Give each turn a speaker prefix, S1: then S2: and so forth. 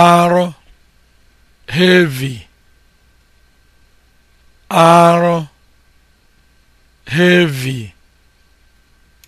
S1: arụ heavy arụ heavy